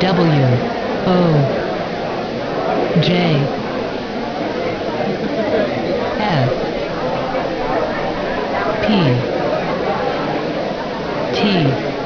W O J S P T